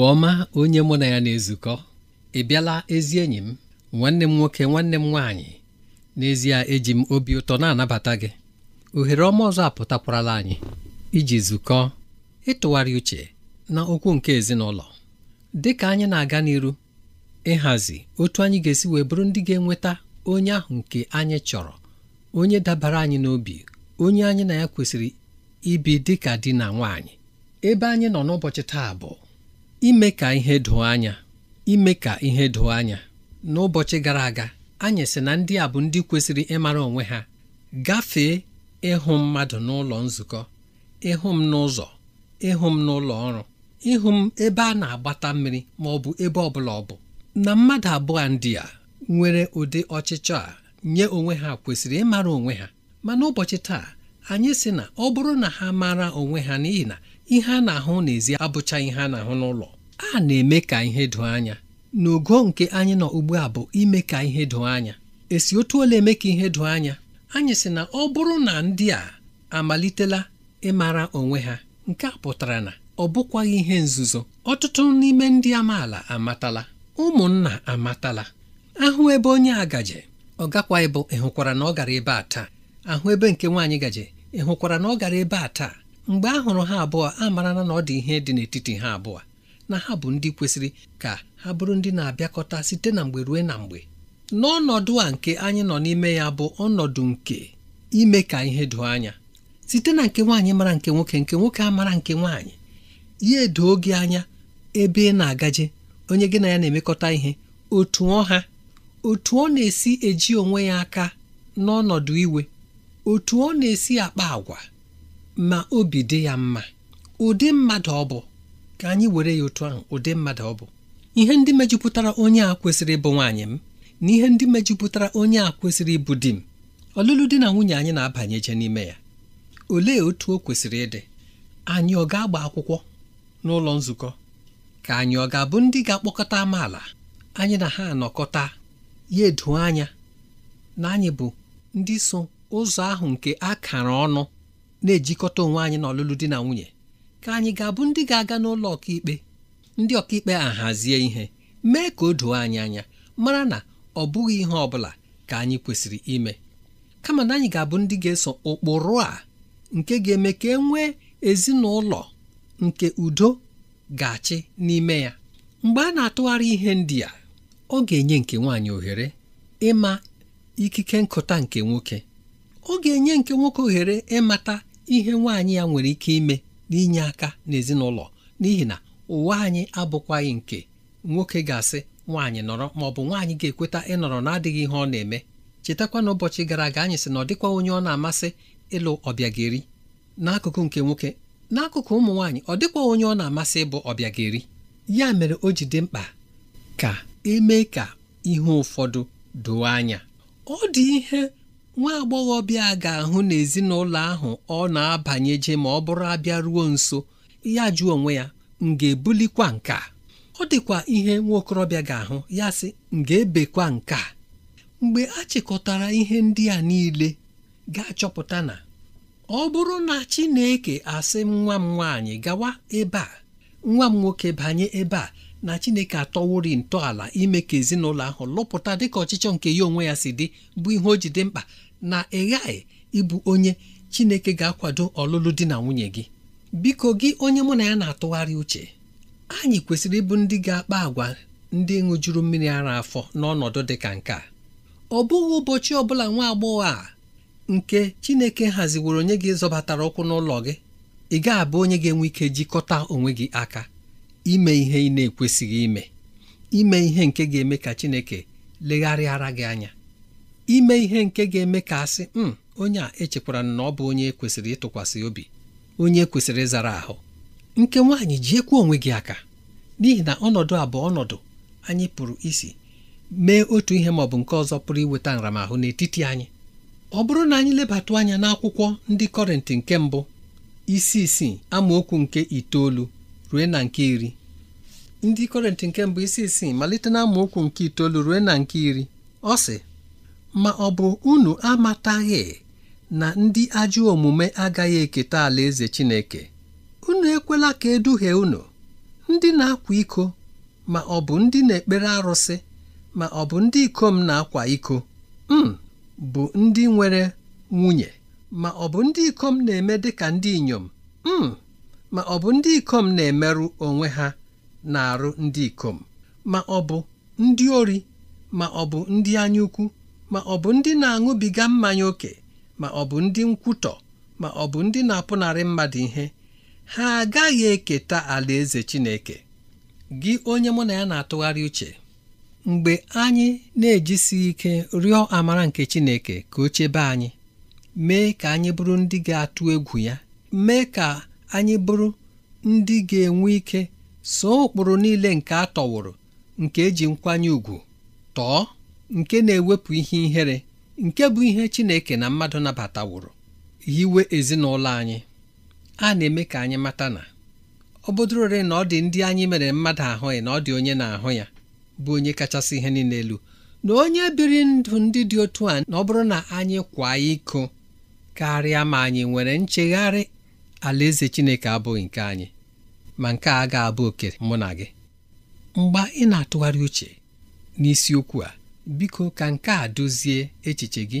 mgbe ọma onye mụ na ya na-ezukọ ị bịala ezi enyi m nwanne m nwoke nwanne m nwaanyị n'ezie eji m obi ụtọ na-anabata gị ohere ọma ọzọ apụtakwarala anyị iji zukọ ịtụgharị uche na okwu nke ezinụlọ dị ka anyị na-aga n'iru ịhazi otu anyị ga-esi wee bụrụ ndị ga-enweta onye ahụ nke anyị chọrọ onye dabara anyị n'obi onye anyị na ya kwesịrị ibi dị ka di na nwaanyị ebe anyị nọ n'ụbọchị taa bụ ime ka ihe doo anya ime ka ihe doo anya n'ụbọchị gara aga anyị sị na ndị a bụ ndị kwesịrị ịmara onwe ha gafee ịhụ mmadụ n'ụlọ nzukọ ịhụ m n'ụzọ ịhụ m n'ụlọ ọrụ ịhụ m ebe a na-agbata mmiri ma ọ bụ ebe ọ bụla ọ bụ na mmadụ abụọ ndị a nwere ụdị ọchịchọ a nye onwe ha kwesịrị ịmara onwe ha mana ụbọchị taa anyị sị na ọ bụrụ na ha mara onwe ha n'ihi na ihe a na-ahụ n'ezi abụcha ihe a na-ahụ n'ụlọ a na-eme ka ihe doo anya n'ogo nke anyị nọ ugbu a bụ ime ka ihe doo anya esi otu ole eme ka ihe doo anya anyị sị na ọ bụrụ na ndị a amalitela ịmara onwe ha nke a pụtara na ọ bụkwaghị ihe nzuzo ọtụtụ n'ime ndị amaala amatala ụmụnna amatala ahụ ebe onye a gaje ọ gakwa ịbụ ịhụkwara na ọ gara ebe a taa ahụ ebe nke nwaanyị gaje ịhụkwara na ọ gara ebe a taa mgbe a hụrụ ha abụọ a marala na ọ dị ihe dị n'etiti ha abụọ na ha bụ ndị kwesịrị ka ha bụrụ ndị na-abịakọta site na mgbe ruo na mgbe n'ọnọdụ a nke anyị nọ n'ime ya bụ ọnọdụ nke ime ka ihe doo anya site na nke nwaanyị mara nke nwoke nke nwoke amara nke nwaanyị ya edo oge anya ebe ị na-agaje onye gị na ya na-emekọta ihe otu ọ ha otu ọ na-esi eji onwe ya aka n'ọnọdụ iwe otu ọ na-esi akpa agwa ma obi dị ya mma ụdị mmadụ ọ bụ ka anyị were ya otu ahụ ụdị mmadụ ọ bụ ihe ndị mejupụtara onye a kwesịrị ịbụ nwaanyị m na ihe ndị mejupụtara onye a kwesịrị ịbụ di m ọlụlụ di na nwunye anyị na je n'ime ya olee otu o kwesịrị ịdị anyị ọ ga-agba akwụkwọ n'ụlọ nzukọ ka anyị ọ ga-abụ ndị ga-akpọkọta amaala anyị na ha anọkọta ya edo anya na anyị bụ ndị so ụzọ ahụ nke akara ọnụ na-ejikọta onwe anyị n'ọlụlụ di na nwunye ka anyị ga-abụ ndị ga-aga n'ụlọ ọkaikpe ndị ọkaikpe a hazie ihe mee ka o doo anyị anya mara na ọ bụghị ihe ọ bụla ka anyị kwesịrị ime kama na anyị ga-abụ ndị ga-eso ụkpụrụ a nke ga-eme ka e nwee ezinụlọ nke udo ga-achị n'ime ya mgbe a na-atụgharị ihe ndị a ọ ga-enye nke nwaanyị ohere ịma ikike nkụta nke nwoke ọ ga-enye nke nwoke ohere ịmata ihe nwaanyị ya nwere ike ime n'inye aka n'ezinụlọ n'ihi na ụwa anyị abụkwaghị nke nwoke ga-asị nwaanyị nọrọ ma ọ bụ nwaanyị ga-ekweta ịnọrọ na-adịghị ihe ọ na-eme chetakwa na ụbọchị gara aga anyị sị na ọ dịkwa onye ọ na-amasị ịlụ ọbịageri n'akụkụ nke nwoke n'akụkụ ụmụ nwaanyị ọ dịkwa onye ọ na-amasị ịbụ ọbịageri ya mere o ji dị mkpa ka emee ka ihe ụfọdụ doo anya ọ dị ihe nwa agbọghọbịa ga-ahụ n'ezinụlọ ahụ ọ na-abanyeje ma ọ bụrụ abịa ruo nso ya jụọ onwe ya m ebulikwa nka ọ dịkwa ihe nwa okorobịa ga-ahụ ya sị m ebekwa nka mgbe a chịkọtara ihe ndị a niile ga-achọpụta na ọ bụrụ na Chineke asị nwa m nwaanyị gawa ebe a nwa m nwoke banye ebe a na Chineke atọwuri ntọala ime ka ezinụlọ ahụ lụpụta dịka ọchịchọ nke ya onwe ya si dị bụ ihe o jide dị mkpa na ị ghaghị ịbụ onye Chineke ga-akwado ọlụlụ di na nwunye gị biko gị onye mụ na ya na-atụgharị uche anyị kwesịrị ịbụ ndị ga-akpa agwa ndị ṅụjuru mmiri ara afọ n'ọnọdụ dị ka nke a ọ bụghị ụbọchị ọ bụla nwa agbọghọ a nke Chineke haziworo onye gị zọbatara ụkwụ n'ụlọ gị ị ga-abụ onye ga-enwe ike jikọta onwe gị aka ime ihe ị na-ekwesịghị ime ime ihe nke ga-eme ka Chineke legharịara gị anya ime ihe nke ga-eme ka asị m hmm, onye a echekwara na ọ bụ onye kwesịrị ịtụkwasị obi onye kwesịrị ịzara ahụ nke nwaanyị jiekwa onwe gị aka n'ihi na ọnọdụ abụọ ọnọdụ anyị pụrụ isi mee otu ihe maọbụ nke ọzọ pụrụ iweta nramahụ n'etiti anyị ọ bụrụ na anyị lebatụ anya n'akwụkwọ ndị kọrịntị nke mbụ isi isii amaokwu nke itoolu rue na nke iri ndị kọrịntị nke mbụ isi isii malite na amaokwu nke itoolu rue na nke iri ọ sị ma ọ bụ unu amataghị na ndị ajọ omume agaghị eketa ala alaeze Chineke unu ekwela ka eduhie unu ndị na-akwa iko ma ọ bụ ndị na-ekpere arụsị ma ọ bụ ndị ikom na-akwa iko m mm, bụ ndị nwere nwunye ma ọ bụ ndị ikom na-eme dịka ndị inyom m mm, ma ọ bụ ndị ikom na-emerụ onwe ha na-arụ ndị ikom ma ọ bụ ndị ori ma ọ bụ ndị ma ọ bụ ndị na-aṅụbiga mmanya ókè ma ọ bụ ndị nkwutọ ma ọ bụ ndị na-apụnarị mmadụ ihe ha agaghị eketa alaeze Chineke gị onye mụ na ya na-atụgharị uche mgbe anyị na-ejisi ike rịọ amara nke Chineke ka o chebe anyị mee ka anyị bụrụ ndị ga-atụ egwu ya mee ka anyị bụrụ ndị ga-enwe ike soo ụkpụrụ niile nke a tọwụrụ nke eji nkwanye ùgwù tọọ nke na-ewepụ ihe ihere nke bụ ihe Chineke na mmadụ nabatawụrụ yiwe ezinụlọ anyị a na-eme ka anyị mata na ọ bụdụrore na ọ dị ndị anyị mere mmadụ ahụghị na ọ dị onye na-ahụ ya bụ onye kachasị ihe niile elu na onye biri ndụ ndị dị otu a na ọ bụrụ na anyị kwa iko karịa ma anyị nwere nchegharị alaeze Chineke abụghị nke anyị ma nke a ga-abụ oke mụ na gị mgbe ị na-atụgharị uche n'isiokwu a biko ka nke a dozie echiche gị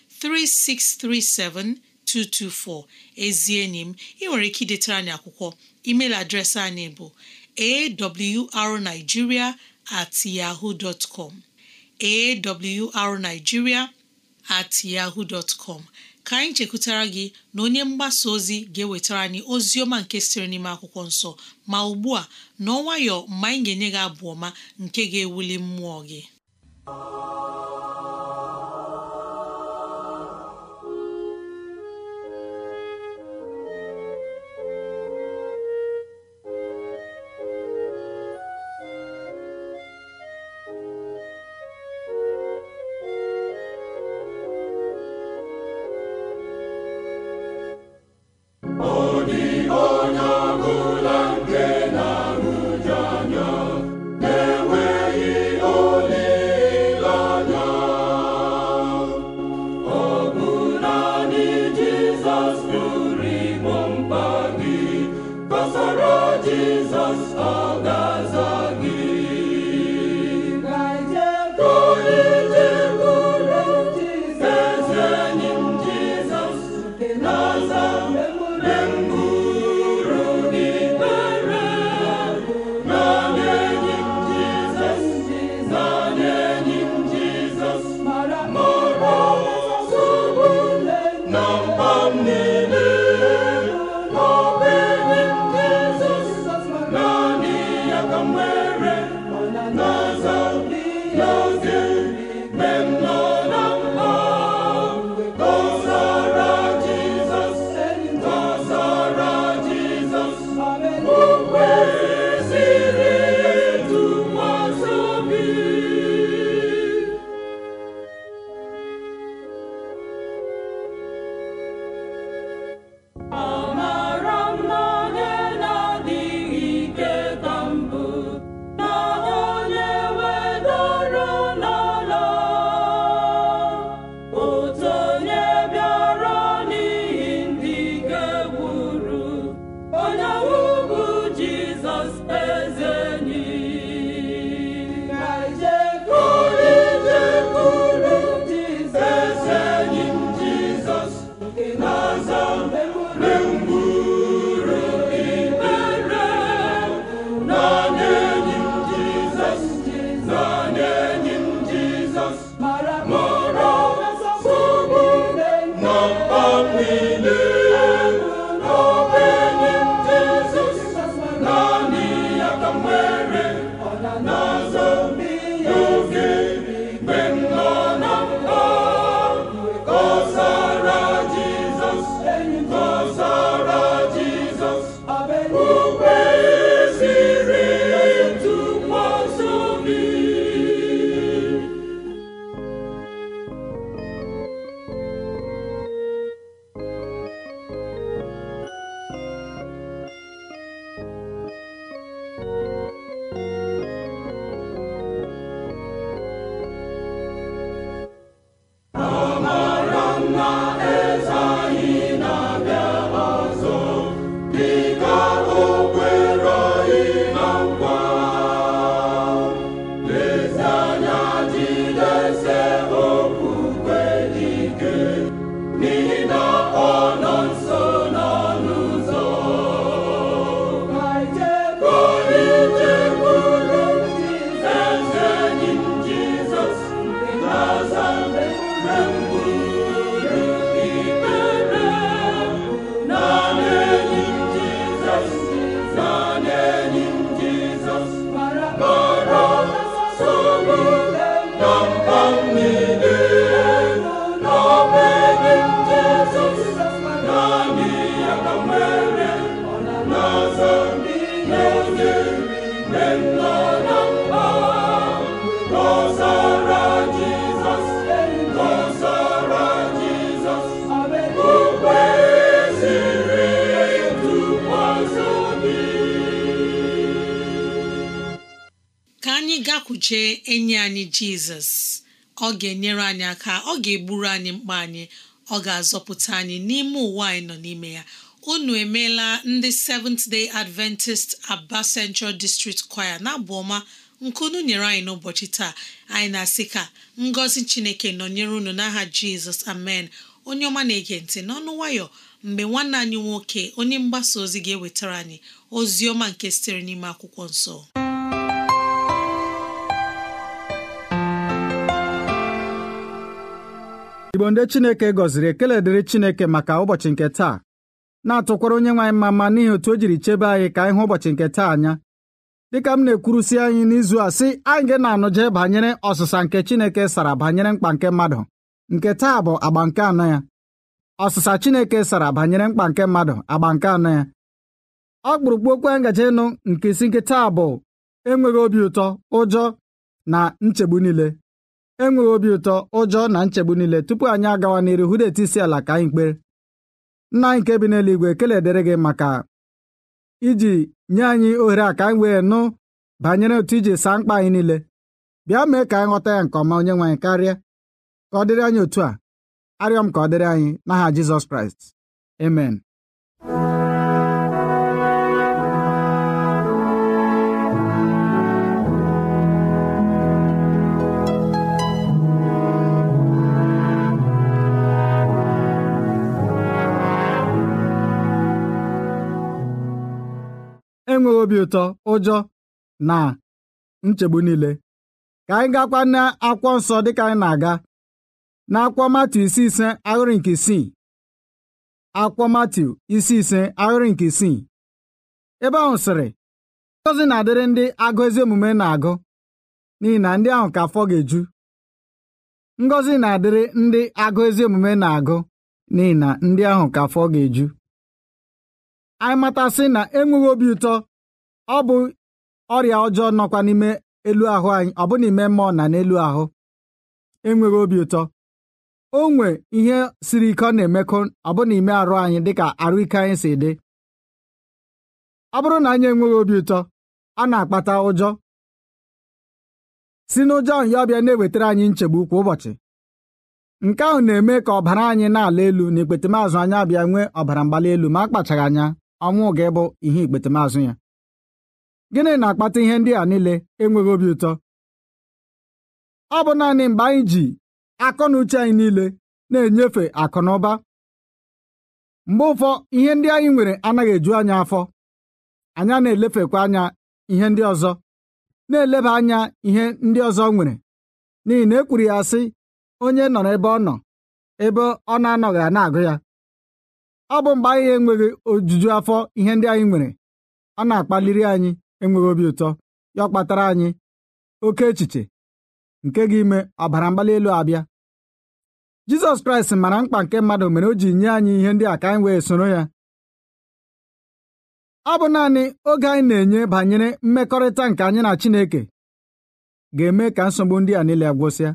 3637224 ezi enyi m ị nwere ike idetara anyị akwụkwọ email adreesị anyị bụ arigiria at at yahoo dot ka anyị chekwutara gị na onye mgbasa ozi ga-ewetara anyị ozi ọma nke siri n'ime akwụkwọ nsọ ma ugbu a n'ọnwayọ mgbe anyị ga-enye gị abụ ọma nke ga-ewuli mmụọ gị özür chee enyi anyị jizọs ọ ga-enyere anyị aka ọ ga-egburu anyị mkpa anyị ọ ga-azọpụta anyị n'ime ụwa anyị nọ n'ime ya unu emeela ndị Seventh Day Adventist Aba Central District Choir na-abụ ọma nkunu nyere anyị n'ụbọchị taa anyị na-asị ka ngọzi chineke nọnyere unu n'aha jizọs amen onye ọma na-ege ntị n'ọnụ nwayọ mgbe nwanne anyị nwoke onye mgbasa ozi ga-ewetara anyị ozi ọma nke sitere n'ime akwụkwọ nsọ igbo ndị chineke gọziri ekele dịrị chineke maka ụbọchị nke taa na-atụkwara onye nwaanyị mma mma n'ihi otu o jiri chebe anyị ka anyị hụ ụbọchị nke taa anya dịka m na-ekwurusi anyị n'izu a sị anyị ga na-anụje banyere ọsịsa nke chineke sara banyere mkpa nke mmadụ nke taa bụ agba nke anọ ya ọsịsa chineke sara banyere mkpa nke mmadụ agba nke anọ ya ọkpụrụkpụ okwu anyị gaje ịnụ nke isi nke taa bụ enweghị obi ụtọ ụjọ na nchegbu niile enweghị obi ụtọ ụjọ na nchegbu niile tupu anyị agawa n'iru hụdeta isi ala ka anyị kpere nna anyị nke bi n'eluigwe ekele edere gị maka iji nye anyị ohere a ka anyị wee nụ banyere otu iji saa mkpa anyị niile bịa mee ka anyị ghọta ya nke ọma onye karịa ka ọ dịrị anyị otu a arịọ m ka ọ dịrị anyị n'aha Jizọs Kraịst amen obi ụtọ ụjọ na nchegbu niile ka anyị gakwa n'akwụkwọ nsọ dịka anyị na-aga n'akwụkwọ Matiu isi ise ahịrị nke isii akwụkwọ Matiu isi ise ahịrị nke isii ebe ahụ sịrị ngozi na-adịrị ndị agụ ezi omume na-agụ n'ihi na ndị ahụ ka afọ ga-eju ngozi na-adịrị ndị agụ ezi omume na-agụ n'ihi na ndị ahụ ka afọ ga-eju anyị matasị na enweghị obi ụtọ ọ bụ ọrịa ọjọọ nọkwa n'ime elu ahụ anyị ọ bụ n'ime mmụọ na n'elu ahụ enweghị obi ụtọ o nwe ihe siri ike ọ na-emekọ ọ bụ n'ime arụ anyị dịka arụ ike anyị si dị ọ bụrụ na anyị enweghị obi ụtọ a na-akpata ụjọ si n'ụjọ ahụ ya ọbịa na-ewetara anyị nchegbu kwa ụbọchị nke ahụ na-eme ka ọbara anyị na-ala elu na ikpetemazụ anyị abịa nwee ọbara mgbali elu ma kpachaghị anya ọnwụ ga bụ ihe ikpetemazụ ya gịnị na-akpata ihe ndị a niile enweghị obi ụtọ ọ bụ naanị mgbe anyị ji akọ na uche anyị niile na-enyefe akụ na ụba mgbe ụfọ ihe ndị anyị nwere anaghị eju anya afọ anyị na-elefekwa anya ihe ndị ọzọ na-eleba anya ihe ndị ọzọ nwere n'ihi na ekwuru ya sị onye nọ n'ebe ọ nọ ebe ọ na-anọghị a na-agụ ya ọ bụ mgbe anyị enweghị ojuju afọ ihe ndị anyị nwere ọ na-akpaliri anyị enweghị obi ụtọ ya kpatara anyị oke echiche nke gị ime ọbara mgbali elu abịa Jizọs Kraịst mara mkpa nke mmadụ mere o ji nye anyị ihe ndị a ka anyị wee soro ya ọ bụ naanị oge anyị na-enye banyere mmekọrịta nke anyị na Chineke ga-eme ka nsogbu ndị a niile gwụsịa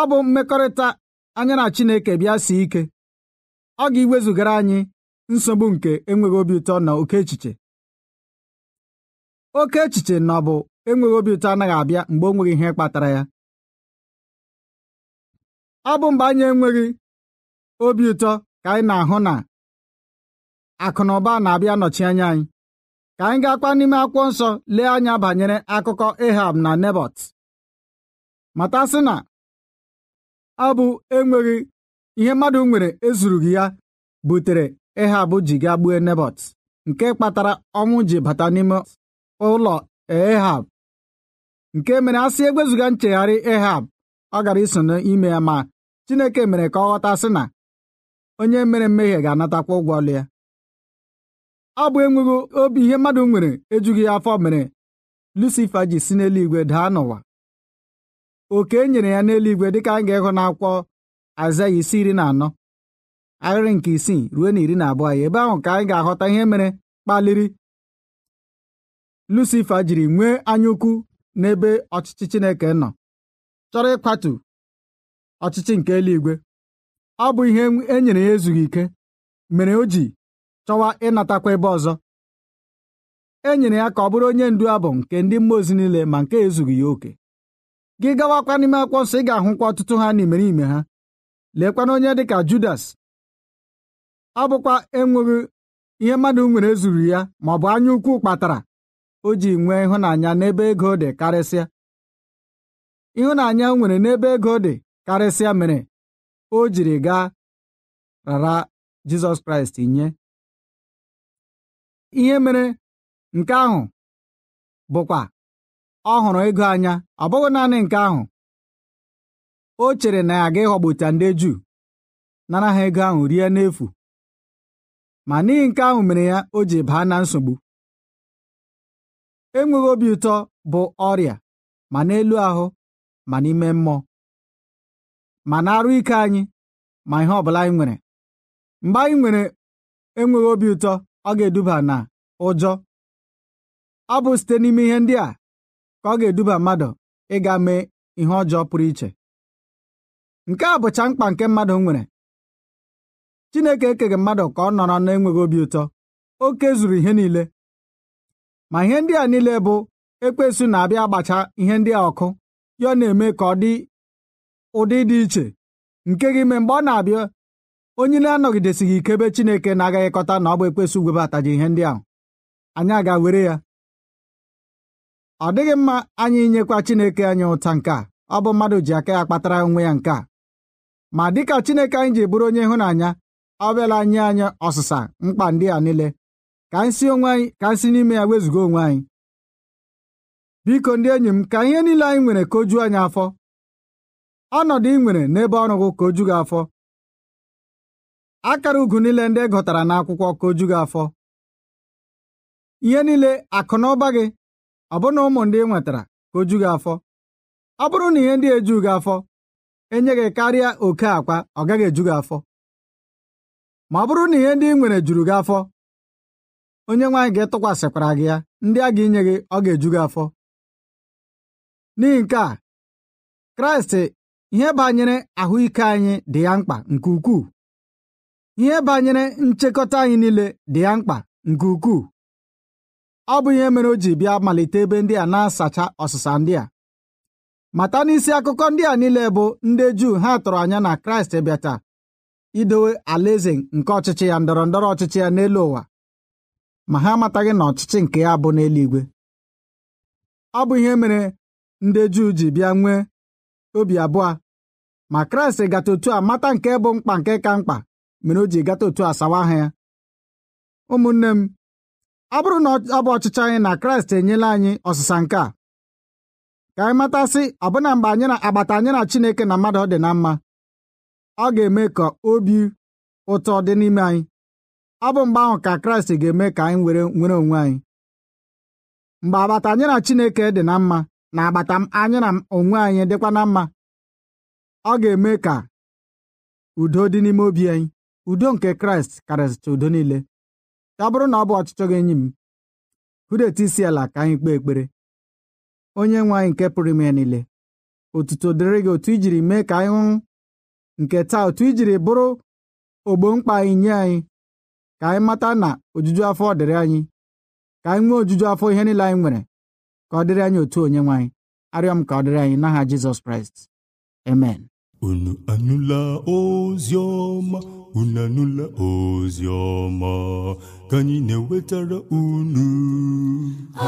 ọ bụ mmekọrịta anya na Chineke bịa sie ike ọ ga-iwezugara anyị nsogbu nke enweghị obi ụtọ na oke echiche oke echiche na ọ bụ enweghị obi ụtọ anaghị abịa mgbe o nweghị ihe kpatara ya ọ bụ mgbe anyị enweghị obi ụtọ ka anyị na-ahụ na akụ na ụba na-abịa nọchi anya anyị ka anyị ga-akwa n'ime akwụkwọ nsọ lee anya banyere akụkọ Ehab na Nebot matasị sị na ọ bụ enweghị ihe mmadụ nwere ezurughị ya butere Ehab ji gaa gbue Nebot nke kpatara ọnwụ ji bata n'ime ụlọ ehab nke mere asị egwezuga nchegharị ehab ọ gara iso n'ime ya ma Chineke mere ka ọ ghọta sị na onye mere mmehie ga-anatakwa ụgwọ ọlụ ya ọ bụ enweghị obi ihe mmadụ nwere ejughị ya afọ mere Lucifa ji si n'eluigwe daa n'ụwa oke e nyere ya n'eluigwe dịka anyị ga-ịhụ n'akwụkwọ Aịzaya isi iri na anọ ahịrị nke isii ruo na iri na abụọ ya ebe ahụ ka anyị ga-aghọta ihe mere kpaliri lucifa jiri nwee anyaukwu n'ebe ọchịchị chineke nọ chọrọ ịkwatu ọchịchị nke eluigwe ọ bụ ihe e nyere ya ezughị ike mere o ji chọwa ịnatakwa ebe ọzọ e nyere ya ka ọ bụrụ onye ndu abụ nke ndị mmụọ ozi niile ma nke ezughị ya oke gị gawakwa n'ime akwụkwọ nsọ ị ga-ahụkwa ọtụtụ ha n'imerime ha leekwana onye dịka Judas ọ bụkwa enweghị ihe mmadụ nwere ezuru ya ma ọ bụ anya ukwu kpatara o ji nwee ịhụnanya n'ebe ego dị karịsịa ịhụnanya o nwere n'ebe ego dị karịsịa mere o jiri gaa rara Jizọs Kraịst nye ihe mere nke ahụ bụkwa ọ hụrụ ego anya ọ bụghị naanị nke ahụ o chere na ya ga-ịghọgbuta ndị Juu nara ha ego ahụ rie n'efu ma n'ihi nke ahụ mere ya o ji baa na nsogbu enweghị obi ụtọ bụ ọrịa ma n'elu ahụ ma n'ime mmụọ ma na-arụ ike anyị ma ihe ọ bụla anyị nwere mgbe anyị nwere enweghị obi ụtọ ọ ga-eduba na ụjọ ọ bụ site n'ime ihe ndị a ka ọ ga-eduba mmadụ ịga mee ihe ọjọọ pụrụ iche nke a bụcha mkpa nke mmadụ nwere Chineke ekeghị mmadụ ka ọ nọrọ n'enweghị obi ụtọ oke zuru ihe niile ma ihe ndị a niile bụ ekpesu na-abịa agbacha ihe ndị a ọkụ ya na-eme ka ọ dị ụdị dị iche nke gị mee mgbe ọ na-abịa onye na-anọgidesighị ikebe Chineke na-agaghịkọta na ọ bụ ekpesu webataji ihe ndị ahụ anyị aga were ya ọ dịghị mma anyị inyekwa Chineke anyị ụta nke a ọ bụ mmadụ ji aka ya kpatara onwe ya nke a ma dịka Chineke anyị ji bụrụ onye ịhụnanya ọ bịala nye anyị ọsịsa mkpa ndị a niile ka anyị si onwe anyị ka anyị si n'ime ya wezuga onwe anyị biko ndị enyi m ka ihe niile anyị nwere ka o anyị afọ ọnọdụ ị nwere n'ebe ọrụ gị ka o gị afọ akara ugwu niile ndị e gụtara n'akwụkwọ ka o gị afọ ihe niile akụ na ụba gị ọbụna ụmụ ndị ị e nwetara ka o gị afọ ọ bụrụ na ihe ndị eju gị afọ enye gị karịa oke akwa ọ gaghị eju gị afọ ma ọ bụrụ na ihe ndị ị nwere juru gị afọ onye nwe anyị ga-etụkwasịkwara gị ya ndị a ga-inye gị ọ ga-eju gị afọ n'ihi nke a kraịst ihe banyere ahụike anyị dị ya mkpa nke ukwuu ihe banyere nchekọta anyị niile dị ya mkpa nke ukwuu ọ bụ ihe mere o ji bịa malite ebe ndị a na-asacha ọsịsa ndị a mata n'isi akụkọ ndị a niile bụ ndị Juu ha tụrụ anya na Kraịst bịata idowe alaeze nke ọchịchị ya ndọrọ ndọrọ ọchịchị ya n'elu ụwa ma ha amataghị na ọchịchị nke ya bụ n'eluigwe ọ bụ ihe mere ndị Juu ji bịa nwee obi abụọ ma Kraịst gata otu a mata nke bụ mkpa nke ka mkpa mere o ji gata otu a sawa aha ya ụmụnne m ọ bụrụ na ọ bụ ọchịchọ anyị na Kraịst enyela anyị ọsịsa nke a ka anyị matasị ọbụna mgbe anyị na agbata anyị na Chineke na mmadụ ọ dị na mma ọ ga-eme ka obi ụtọ dị n'ime anyị ọ bụ mgbe ahụ ka kraịst ga-eme ka anyị were nwere onwe anyị mgbe agbata anyị na chineke dị na mma na agbata anyị na onwe anyị dịkwa na mma ọ ga-eme ka udo dị n'ime obi anyị udo nke kraịst karịsịcha udo niile ọ bụrụ na ọ bụ ọchịchọ gị enyi m hụdeta isi ala ka anyị kpee ekpere onye nwe anyị nke pụrụ ime niile otuto dịrị gị otu ijiri mee ka anyị hụrụ nke taa otu ijiri bụrụ ogbo mkpa anyị nye anyị ka anyị mata na ojuju afọ dịrị anyị ka anyị nwee ojuju afọ ihe niile anyị nwere ka ọ dịrị anyị otu onye nwanyị anyị arịọ m ka ọ dịrị anyị n'aha Jizọs Kraịst amen unu anụla ozi ọma unu anụla ozi ọma ka anyị na-ewetara unu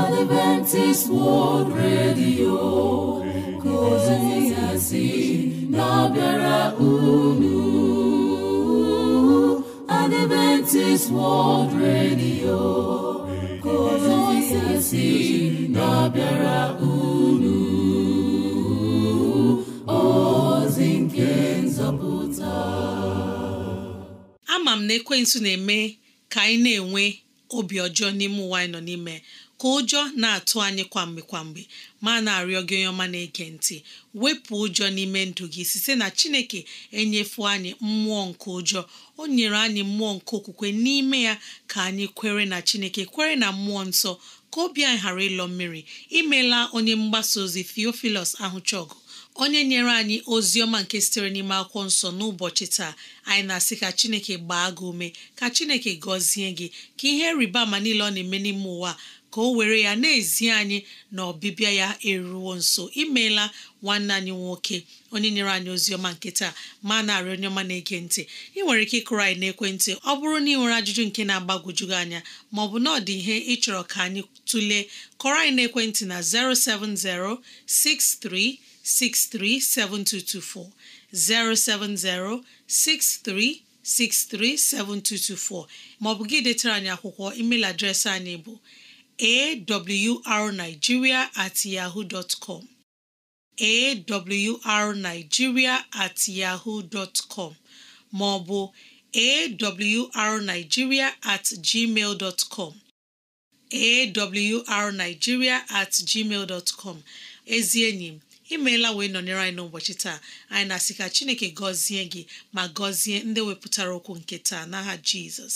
Adventist World Radio ka ozi ya na-abịara unu Adventist World Radio kozosisi na-abịara unu ozi nke nzọpụta ama m na ekwensu na-eme ka anyị na-enwe obi ọjọọ n'ime ụwa anyị nọ n'ime ka ụjọ na-atụ anyị kwamgbe kwamgbe ma na-arịọ gị onye ọma na-ege ntị wepụ ụjọ n'ime ndụ gị site na Chineke enyefu anyị mmụọ nke ụjọ o nyere anyị mmụọ nke okwukwe n'ime ya ka anyị kwere na Chineke kwere na mmụọ nsọ ka obi anyị ghara ịlọ mmiri imela onye mgbasa ozi Theophilus Ahụchọgụ onye nyere anyị ozi ọma nke sitere n'ime akwụkwọ nsọ n'ụbọchị taa anyị na-asị ka chineke gbaa gị ume ka chineke gọzie gị ka ihe rịba ma niile ọ na-eme n'ime ụwa ka o were ya na-ezi anyị na ọbịbịa ya eruwo nso imeela nwanne anyị nwoke onye nyere anyị ozi ọma nke taa ma na-arịọ onye ọma na-ege ntị ị nwere ike ịkụrụ anyị n'ekwentị ọ bụrụ na ị nwere ajụjụ nke na agbagojugị anya ma ọ bụ na ọ dị ihe ịchọrọ ka anyị tụlee kọrọ anyị n'ekwentị na 07063637224 07063 637224 maọbụ gị detara anyị akwụkwọ email adreesị anyị bụ awrnigeria at yahoo dot com awrnigeria at yahoo dot com ma awrnigeria at gmail dot com awrnigeria at gmail dot ezi enyi m imeela wee nọnyere anyị n'ụbọchị taa anyị na-asị ka Chineke gọzie gị ma gọzie ndị wepụtara okwu nke taa n'aha Jizọs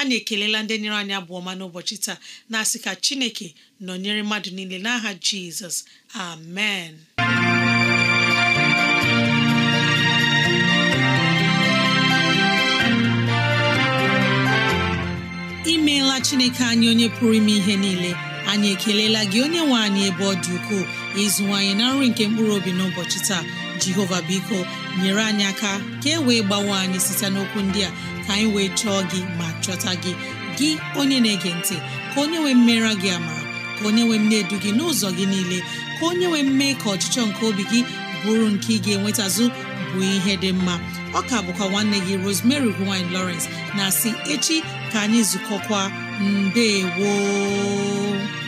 anyị na-ekelela ndị nyere anyị abụ ọma n'ụbọchị taa na-asị ka chineke nọnyere mmadụ niile n'aha jizọs amen imeela chineke anyị onye pụrụ ime ihe niile anyị ekelela gị onye nwe anyị ebe ọ dị ukwuu ukoo ịzụwanyị na nri nke mkpụrụ obi n'ụbọchị taa jehova biko nyere anyị aka ka e wee gbawe anyị site n'okwu ndị a ka anyị wee chọọ gị ma chọta gị gị onye na-ege ntị ka onye nwee mmera gị ama ka onye nwee mne edu gị n'ụzọ gị niile ka onye nwee mme ka ọchịchọ nke obi gị bụrụ nke ị ga-enwetazụ bụ ihe dị mma ọ ka bụkwa nwanne gị Rosemary gine lowrence na si echi ka anyị zukọkwa mbe woo